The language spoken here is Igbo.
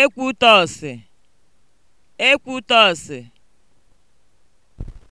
Ekwutọsị (Ekwutọsị)